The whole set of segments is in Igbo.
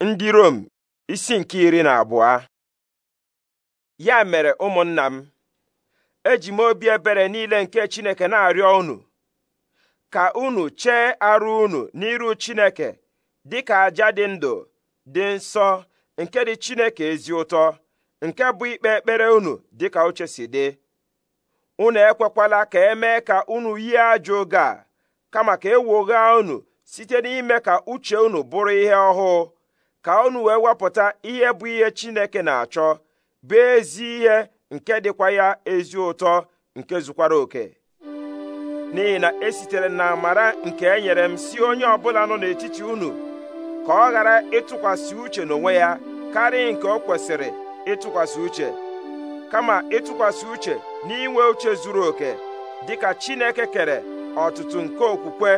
ndị Rom isi nke iri na abụọ ya mere ụmụnna m eji m obi ebere niile nke Chineke na-arịọ unu ka unu chee arụ unu n'iru Chineke dịka aja dị ndụ dị nsọ nke dị Chineke ezi ụtọ nke bụ ikpe ekpere unu dịka uche si dị unu ekwekwala ka emee ka unu yie ajọ oge a kama ka ewogha unu site n'ime ka uche unu bụrụ ihe ọhụụ ka unu wee wepụta ihe bụ ihe Chineke na-achọ bụ ezi ihe nke dịkwa ya ezi ụtọ nke zukwara oke n'ihi na esitere na amara nke enyere nyere m si onye ọbụla nọ n'etiti unu ka ọ ghara ịtụkwasị uche n'onwe ya karịa nke o kwesịrị ịtụkwasị uche kama ịtụkwasị uche n'inwe uche zuru oke dịka Chineke kere ọtụtụ nke okwukwe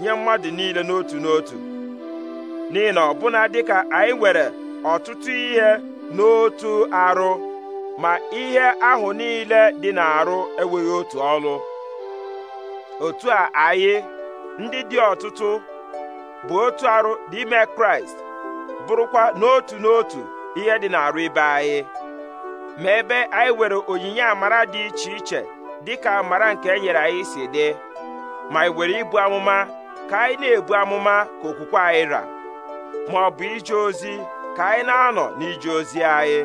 nye mmadụ niile n'otu n'otu n'ihi na ọbụna dịka anyị nwere ọtụtụ ihe n'otu arụ ma ihe ahụ niile dị n'arụ enweghị otu ọlụ otu a anyị ndị dị ọtụtụ bụ otu arụ n'ime kraịst bụrụkwa n'otu n'otu ihe dị n'arụ ibe anyị ma ebe anyị nwere onyinye amara dị iche iche dịka amara nke e nyere anyị si dị ma anyị nwere ibu amụma ka anyị na-ebu amụma ka okwukwe anyị ra ma ọ bụ ije ozi ka anyị na-anọ n'ije ozi anyị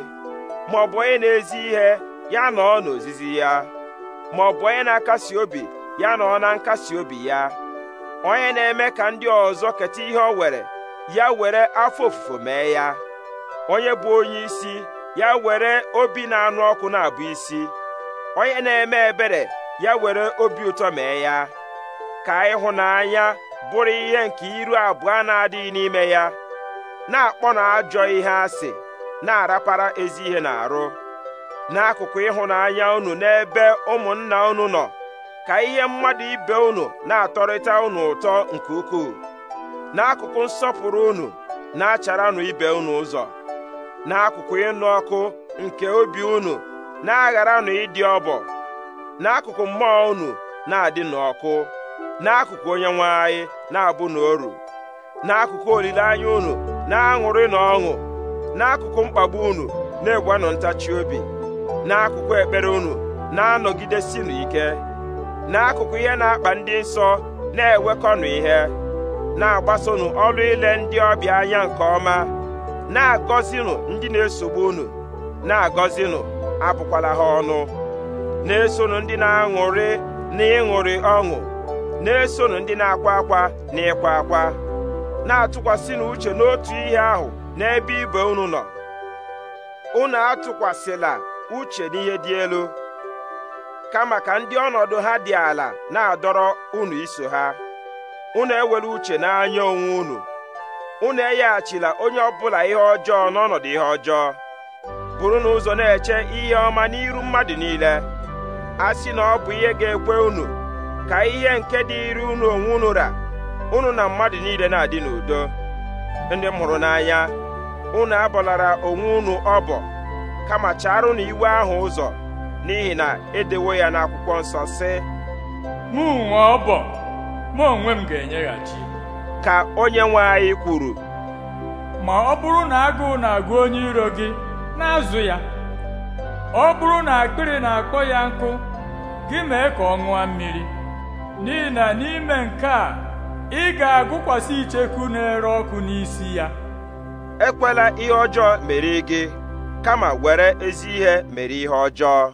ma ọ bụ onye na-ezi ihe ya nọọ n'ozizi ya ma ọ bụ onye na-akasi obi ya ọ na nkasi obi ya onye na-eme ka ndị ọzọ keta ihe o were ya were afọ ofufo mee ya onye bụ onye isi ya were obi na-anụ ọkụ na-abụ isi onye na-eme ebere ya were obi ụtọ mee ya ka ịhụnanya bụrụ ihe nke iru abụọ na-adịghị n'ime ya na-akpọ na ajọ ihe asị na-arapara ezi ihe na-arụ n'akụkụ ịhụnanya unu n'ebe ụmụnna unu nọ ka ihe mmadụ ibe unu na-atọrịta unu ụtọ nke ukwuu n'akụkụ nsọpụrụ unu na-acharanụ ibe unu ụzọ n'akụkụ ịnụ ọkụ nke obi unu na-agharanụ ịdị ọbọ n'akụkụ mmụọ unu na-adị n'ọkụ n'akụkụ onye nwe anyị na-abụ na oru n'akụkụ olileanya unu na-aṅụrị na ọṅụ n'akụkụ mkpagbu unu na-egwanụ ntachi obi n'akụkụ ekpere unu na-anọgidesinu ike n'akụkụ ihe na-akpa ndị nsọ na-ewekọnụ ihe na-agbasonụ ọrụ ile ndị ọbịa anya nke ọma na-agọzinụ ndị na-esogbu unu na-agọzinụ abụkwala ha ọnụ na-esonụ ndị na-aṅụrị na ịṅụrị ọṅụ na-esonụ ndị na-akwa akwa na ịkwa akwa na-atụkwasị uche n'otu ihe ahụ n'ebe ibe unu nọ unu atụkwasịla uche n'ihe dị elu kama ka ndị ọnọdụ ha dị ala na-adọrọ unu iso ha unu ewere uche n'anya onwe unu unu enyeghachila onye ọbụla ihe ọjọọ n'ọnọdụ ihe ọjọọ buru n'ụzọ na-eche ihe ọma n'iru mmadụ niile a sị na ọ bụ ihe ga-ekwe unu ka ihe nke dịrị unu onwe unu ra unu na mmadụ niile na-adị n'udo ndị m hụrụ n'anya unu abọlara onwe unu ọbọ kama na iwe ahụ ụzọ n'ihi na edewo ya n'akwụkwọ nsọ sị mụ nwe ọbọ mụ onwe m ga-enyeghachi ka onye nwe anyị kwuru ma ọ bụrụ na agụụ na-agụ onye iro gị na-azụ ya ọ bụrụ na akpịrị na-akpọ ya nkụ gị mee ka ọ ṅụọ mmiri n'ihi na n'ime nke a ị ga-agụkwasị icheku na-ere ọkụ n'isi ya ekwela ihe ọjọọ mere gị kama were ezi ihe mere ihe ọjọọ